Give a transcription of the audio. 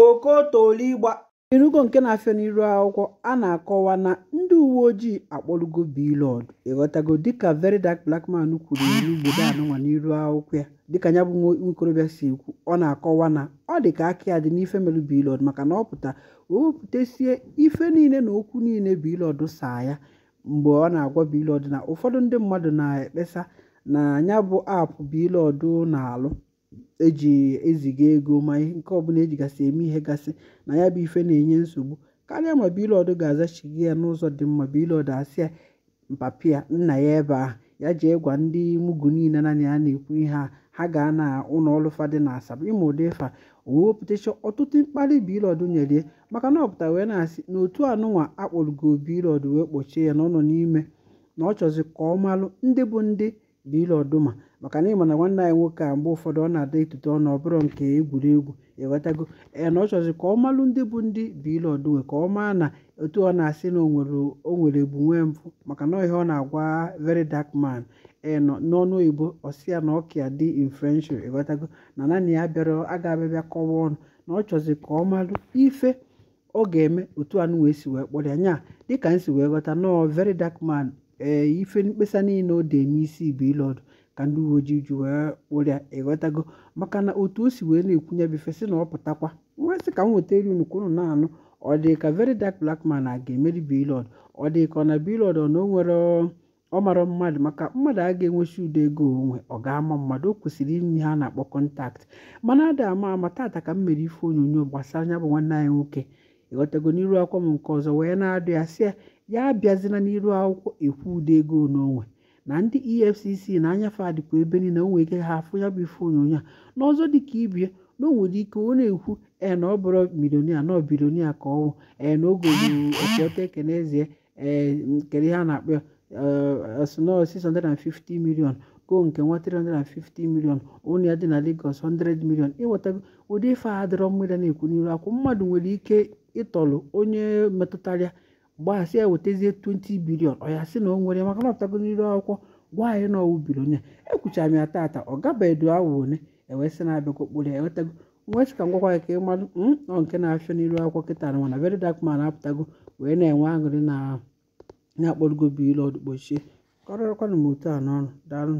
Okotoligba erugo nke na-afịa n'ihu akwụkwọ a na-akọwa na ndị uwe ojii akpọrọgo Blord ịghọtago dịka Veronica Blackman kwuru n'ogbe anụnwa n'ihu akwụkwọ ya, dịka ya bụ nwokorobịa si ekwu, ọ na-akọwa na ọ dị ka “aka ya dị n'ife melụ Blord maka na ọ pụta o wepụtasịa ife niile na okwu niile Blord saa ya,” mgbe ọ na-agwa Blord na ụfọdụ ndị mmadụ na-ekpesa na nya bụ aapụ Blord na alụ. eji eziga ego ma ihe nke ọbụla ejigasị eme ihe gasị na ya bụ ife na-enye nsogbu karịa ma bilọdụ ga azachighị ya n'ụzọ dị mma bilọdụ asị ya mpapịa nna ya ebe ahụ ya jee gwa ndị mugu niile na ya na-ekwu ihe a ha gaa na ụlọọrụ fadị na asaba ịma ụdị fa wewepụtacha ọtụtụ mkparị bilọdụ nyere maka na ọpụta wee na-asị na otu anụnwa akpọrọgo bilọdụ wee kpọchie ya na ọ nọ n'ime na ọ chọzi ka ọ malụ ndị bụ ndị bilu ọdụma maka na ịma na nwanne anyị nwoke a mgbe ụfọdụ ọ na-ada etute ọ ọbụrụ nke egwuregwu ewetago na ọ chọzi ka ọ malụ ndị bụ ndị bilu ọdụma ka ọ maa na otu ọ na-asị na o nwere egbu nwee mpụ maka na ihe ọ na-agwa very dark man enọ n'ọnụ oyibo ọsịa na ọkịa dị in french ewetago na naanị ya bịara aga abịabịa kọwa ọnụ na ọ chọzi ka ọ malụ ife ọ ga-eme otu anụ wee si wee kpọrọ ya nya dịka m si wee ghọta nọọ veri dark man ee eh, ife mkpesa niile o de n'isi bụ ile ọdụ ka ndị uwe ojii ji wee kpụrịa ịghọtago e maka na otu o si wee na-ekwunye ya ife sị na ọ pụtakwa nwa sị ka m nweta elu nnukwu unu na-anụ ọ dị ka veri dark blakman man a ga-emeri bilod ọ dị ka ọ na bilod ọ na o nwere ọ mara mmadụ maka mmadụ a ga-enwechi udo ego onwe ọ ga-ama mmadụ o kwesịrị ime ha na-akpọ kọntaktị mana ada ama ama tata ka m mere ife onyonyo gbasara anya bụ nwanne anyị nwoke ịghọtago n'iru akwa m nke ọzọ wee na-adụ ya sị ya ya abịazina n'iru akwụkwọ ekwu ụda ego n'onwe na ndị efcc na anyafe adịkwa ebe niile o nwere ike ha afụ ya bụ ife onyonyo a n'ọzọ dịka ibie na o ike ọ na-ekwu ee na ọ bụrụ milionia na bilionia ka ọnwụ ee na oge ogoopịọta e ekenezie ee nkere ha na-akpọ asụnọ e 650 million go nke nwa 350 million onye ya dị na Lagos 100 million ịnwetago ụdị ife a dịrọ mmiri na-ekwu n'iru akwụ mmadụ nwere ike ịtọlụ onye metụtara gbahasị ya e wetazie 20 bilion ọ ya sị na ọ nwere maka na n'iru akwụkwọ gwa anyị na ọwụ bilion ya ekwuchara m ya tata ọ gabedu awụ ole ewee sị na abịa okpuru ya ewetago nwee sị ka ngwakwa ya ka ị malụ hmm, ọ nke na-afịọ n'iru akwụkwọ kịta na mana veri dark man apụtago wee na-enwe aṅụrị na na-akpọrọgo bilọd kpochie kọrọrọkwanụ m otu a n'ọnụ daalụ